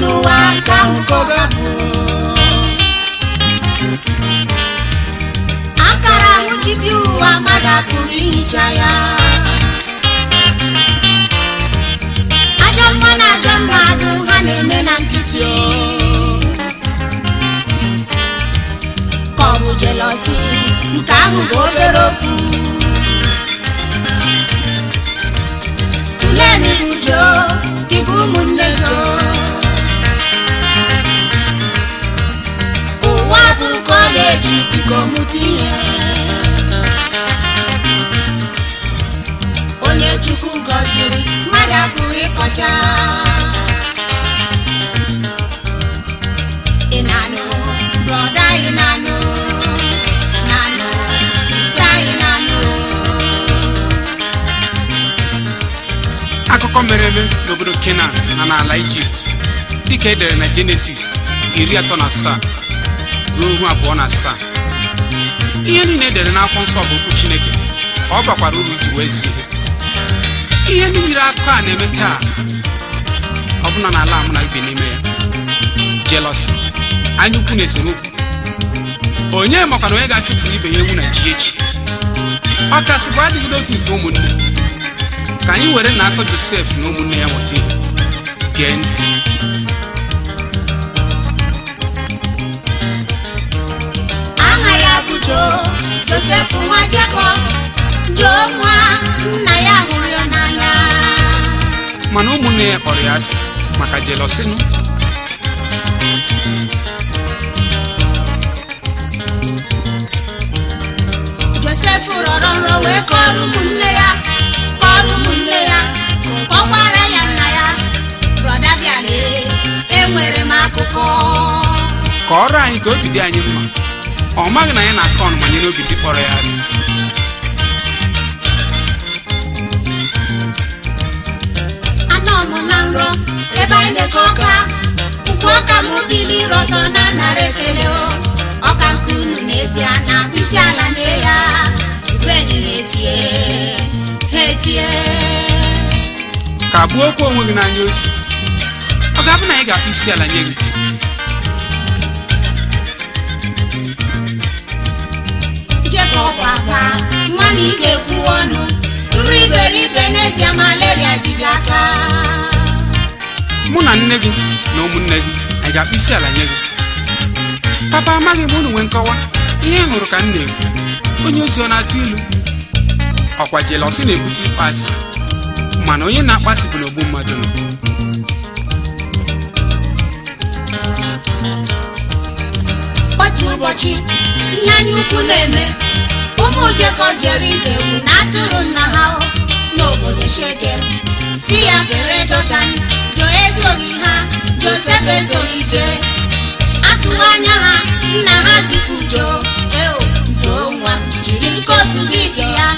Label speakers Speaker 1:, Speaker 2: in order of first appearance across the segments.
Speaker 1: n'ụwa ka nkoga bụ akara nwụchibi ụwa mmadụ apụghị ihicha ya ajọ mma na ajọ mmadụ ha na-eme na nkịtị ka ọ bụ jelọsi nke ahụ bụ obere okwu tụlee n'uju gị bụ ụmụnne onye chukwu gọziri mmadụ apụghị ịkọcha ị na-anụ brọda anyị na-anụ na-anụ sista anyị na-anụ
Speaker 2: akụkọ mere eme n'obodo kenan na n'ala ijipt dịka edere na genesis iri na asaa ruo ihu abụọ na asaa ihe niile edere n'akwụkwọ nsọ bụ okwu chineke ọ bakwara uru iji wee zi ihe ndị akụkọ a na-eme taa ọ bụla na ala mụ na ibi n'ime ya jelosi anya ukwu na esemokwu onye makwana onye ga achụpụrụ ibe ya ewu na ji echi ọ kasị bụ adịghị n'otu nke ụmụnne ka anyị were na akọ josef na ụmụnne ya nweta ihe gee ntị
Speaker 1: jo josef nwa jakọb jo nwa nna ya hụrụ ya
Speaker 2: mana ụmụnne ya kpọrọ ya asị maka josef
Speaker 1: rọrọ nrọ wee kọrọ ụmụnne ya kọrọ ụmụnne ya kọkwara ya nna ya brọda m akụkọ
Speaker 2: kọrọ anyị ka obi dị anyị mma ọ maghị na anyị na-akọ ọnụma nye n'obi ndị kpọrọ ya asị ka gbuo okwu onwe gị n'anya ozi ọ ga-abụ na anyị ga-akpụ isi ala nye gị
Speaker 1: ibe n'ezie malaria jide aka
Speaker 2: mụ na nne gị na ụmụnne gị a ga-akpụ isi ala nye gị papa amaghị m unu nwee nkọwa ihe ị hụrụ ka m na-ekwu onye ozi ọ na-atụ ilu ọkwa jelọsi na-ebute ịkpasị mana onye na-akpasị bụ n'ogbu mmadụ nọ
Speaker 1: otu ụbọchị ihe anyị ukwu na-eme ụmụ ojekọ jere ize ewu na atụrụ nna ha n'obodo shekem si ya kere jọdan jo esoghị ha josef esoghị jee atụghị anya ha nna ha zipụ jo eo jo nwa jiri nkotu gị ike ya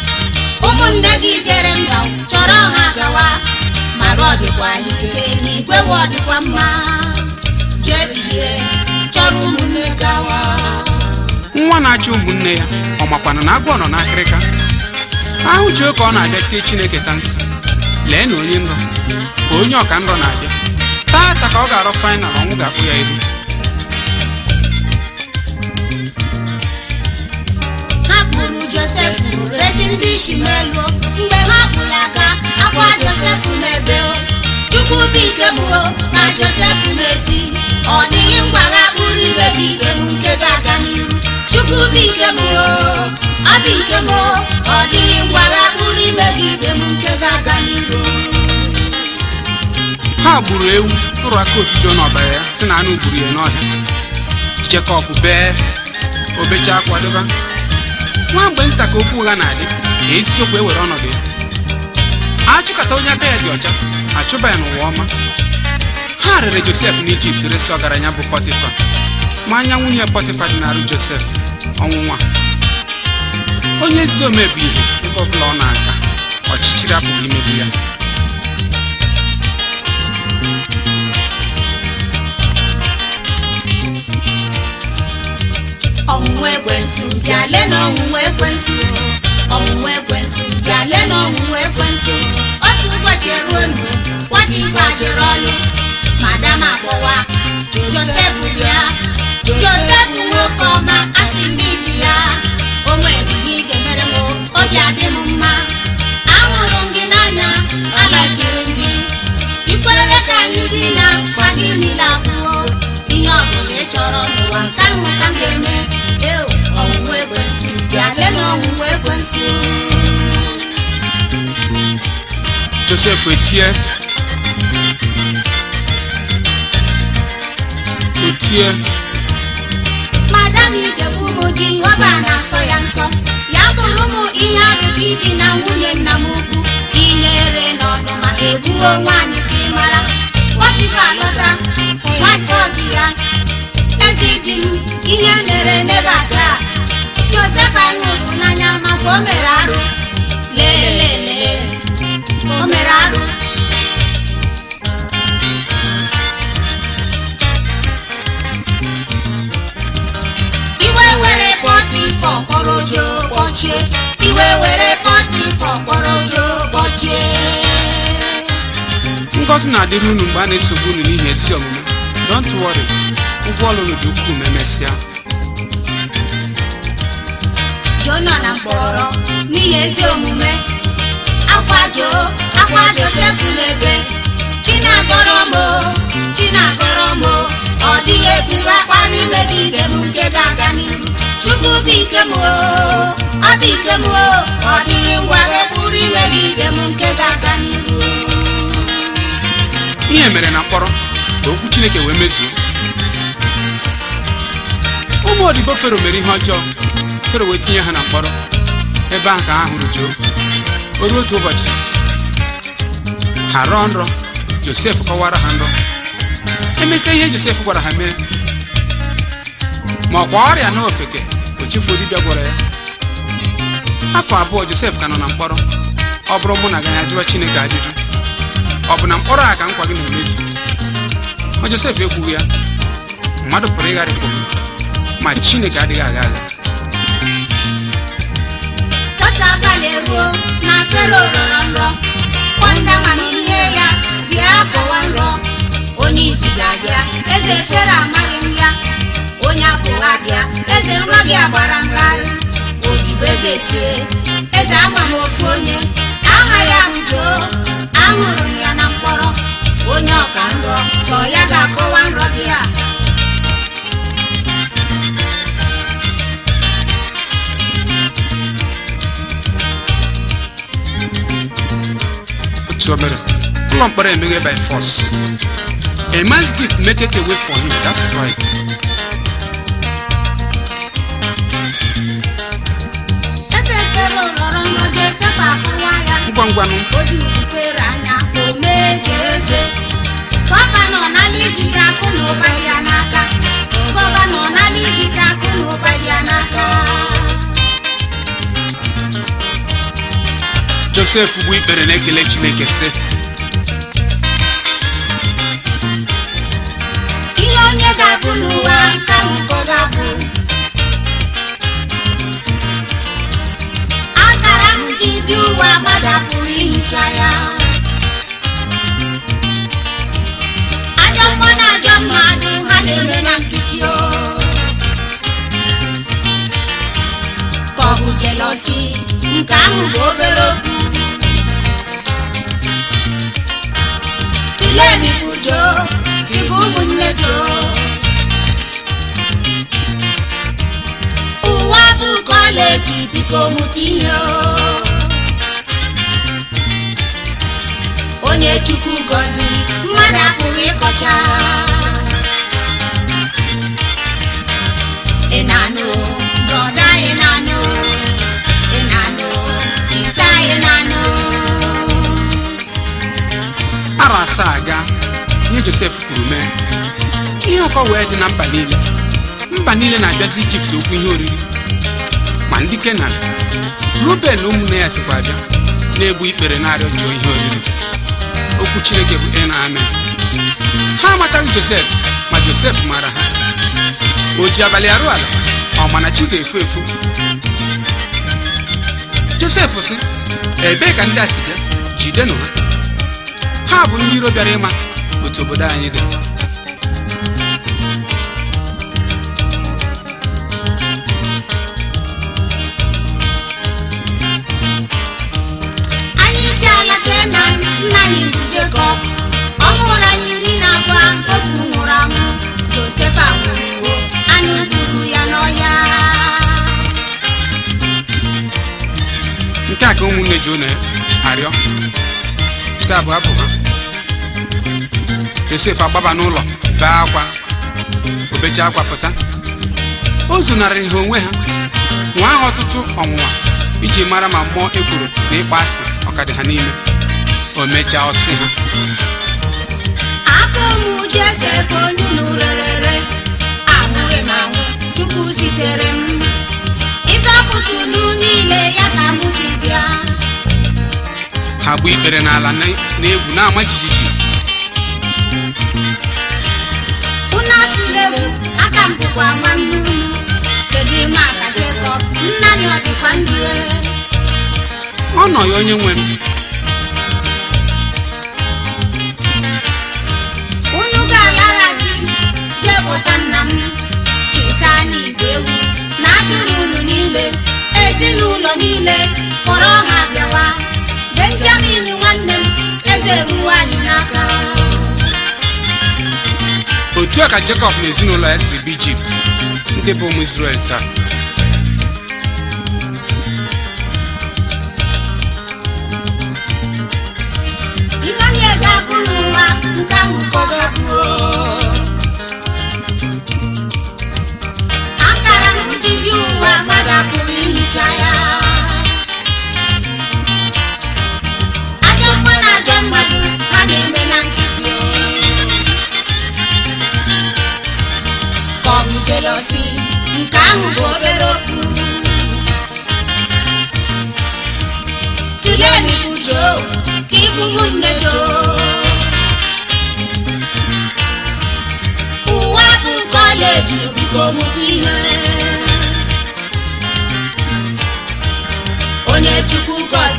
Speaker 1: ụmụnne gị jere mba chọrọ ha gawa mara ọ dịkwa ike n'igwe ọ dịkwa mma jee bie chọrọ ụmụnne gawa
Speaker 2: nwa na-achọ ụmụnne ya ọ makwana na agwọ nọ n'akịrịka ahụ ji oke ọ na-abịa tee chineke ta nsị lee na onye nrọ ka onye ọka nrọ na-abịa taata ka ọ ga-arọ fainal ọnwụ ga-akpụ ya ihu
Speaker 1: kpụrụ e mgbe aka akwa chukwu bi ike na nke ọ nke ọ dịghị ngwara pụrụ ime gị ibe m nke ga-aga n'iru ha
Speaker 2: gburu ewu tụrụ aka otujo n'ọbara ya si na anụ gburu ya n'ọhịa jekọb bee obecha akwadoba nwa mgbe nta ka okwu ụgha na-adị ka isiokwu ewere ọnọdụ ya achụkata onye aka ya dị ọcha achụba ya n'ụwa ọma ha rere josef n'ijipt resi ọgaranya bụ pọtịfa ma anya nwunye pọtịfa dị n'arụ josef ọnwụ nwa onye ezi omebi ihe ebe ọbụla ọ na-aga ọchịchịrị apụghị imegbu ya
Speaker 1: ọnwụnwa ekwensu bịale na ọnwụnwa ekwensu ọnwụnwa ekwensu bịale na ọnwụnwa ekwensu otu ụbọchị eruo nu nwata igwe ajụrụ ọnụ madam akpọwa josef ya josef nwoke ọma
Speaker 2: Joseph Etie
Speaker 1: Etie Madam Idegbu na-asọ ya nsọ ya bụrụ ụmụ ihe arụrụ idi na nwunye nna m ukwu ihere n'ọdụ maka egbuo nwaanyị ka ị mara pọtifa lọta nwata ọdị ya eze dị m ihe mere nebata Joseph anyị hụrụ n'anya maka o mere arụ lelee o mere arụ iwe were
Speaker 2: kpọrọ na-adịrị unu mgbe a na-esogbu unu n'ihi ezi omume don't worry ụgwọ ọlụ dị ukwuu emesịa
Speaker 1: Jona na mkpọrọ n'ihi ezi omume akwa ọkwa Joseph na-ebe chinagoromo mbụ ọ dịghị eburu akpa n'ime dị ibe m nke ga-aga n'ihu chukwu bụ ike m ọ bụ ike m ọ dịghị ngwa eburu ime dị ibe m nke ga-aga n'ihu.
Speaker 2: ihe mere na mkpọrọ ka okwu chineke wee mezuo ụmụ odibo fero mere ihe ọjọọ fero wee tinye ha na mkpọrọ ebe ahụ ka ha hụrụ Job o ruo otu ụbọchị ha rọọ nrọ josef kọwara ha nrọ emesịa ihe josef gwara ha mere ma ọ kwa ọrịa na ofeke ochefu dibịa gwara ya afọ abụọ josef ka nọ na mkpọrọ ọ bụrụ mụ na ganya jụọ chineke ajụjụ ọ bụ na mkpọrọ a ka nkwa gị na-emezu ma josef ekwughị ya mmadụ pụrụ ịgharịpụ ma chineke adịghị agha agha
Speaker 1: tọta na nrọ akọwa nrọ onye isi ga-abịa eze efere amaghị m ya onye apụwa bịa eze nrọ gị agbara mgharị odibo eze tie eze ama m aha onye ya ahụjoo aṅụrụ m ya na mkpọrọ onye ọka nrọ sọ ya ga-akọwa nrọ gị a
Speaker 2: ụlọ mkpọrọ emeghe by force a man's gift make it away for him that's right
Speaker 1: ngwa ngwanụ gọvanọ nala ijide akụ na ụba ya n'aka gọvanọ nala ijide akụ na ụba ya n'aka
Speaker 2: josef bụ ikpere na ekelechi chineke
Speaker 1: akụnụba ikomutiya onye chukwu gọziri mmadụ apụghị ịkọcha
Speaker 2: ara asaa aga nye josef kwuru mee ihe ụkọ wee dị na mba niile mba niile na-abịazi ijipt okwu ihe oriri ndị kenan ruben ụmụnne ya sikwazi na-egbu ikpere na-arịọ ihe oriri okwu chineke bụ e amen ha amataghị josef ma josef mara ha o ji abalị arụ ala ọ mana chi ga-efu efu josef sị ebee ka ndị a si bịa jidenụ ha ha bụ ndị iro bịara ịma otu obodo anyị dị
Speaker 1: ọ mụrụ anyị na abụọ otu nwụrụ anwụ anyị ya
Speaker 2: nke a ka ụmụnne ji unu arịọ nke a bụ abụ ha Josef agbaba n'ụlọ bee akwa obecha akwa pụta o zunarịrị ha onwe ha nwa ahụ ọtụtụ ọnwụnwa iji mara ma mmụọ ekworo na ịkpa asị ọkadị ha n'ime o mechaa ọsị
Speaker 1: Josef onye unu rerere anwụghị m anwụ tupu sitere m ịzọpụta unu niile ya ka m ji bịa
Speaker 2: ha gbu ikpere n'ala n'egwu na-ama jijiji
Speaker 1: unu atụla bụ aka m bụkwa nwanne unu kedu ime aka Jekọb nna ya ọ dịkwa ndụ e? ọ nọ
Speaker 2: onye nwe m
Speaker 1: ọkpọta nna m cheta anyị igwe ewu na akịrị unu niile ezinụlọ niile kpọrọ ha bịawa benjamin nwanne m eze ruo anyị n'aka
Speaker 2: otu a ka jekọb na ezinụlọ ya siri bụ ijipt ndị bụ ụmụ isrel taa
Speaker 1: Emmanuel ga-abụ n'ụwa nke ahụ kọdọ nke ahụ bụ obere okwu tulee n'ikwu joo ka ịbụrụ nne joo ụwa bụ kọleji biko mụta ihe onye chukwu gọzi